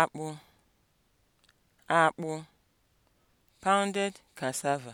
akpụ akpụ pounded cassava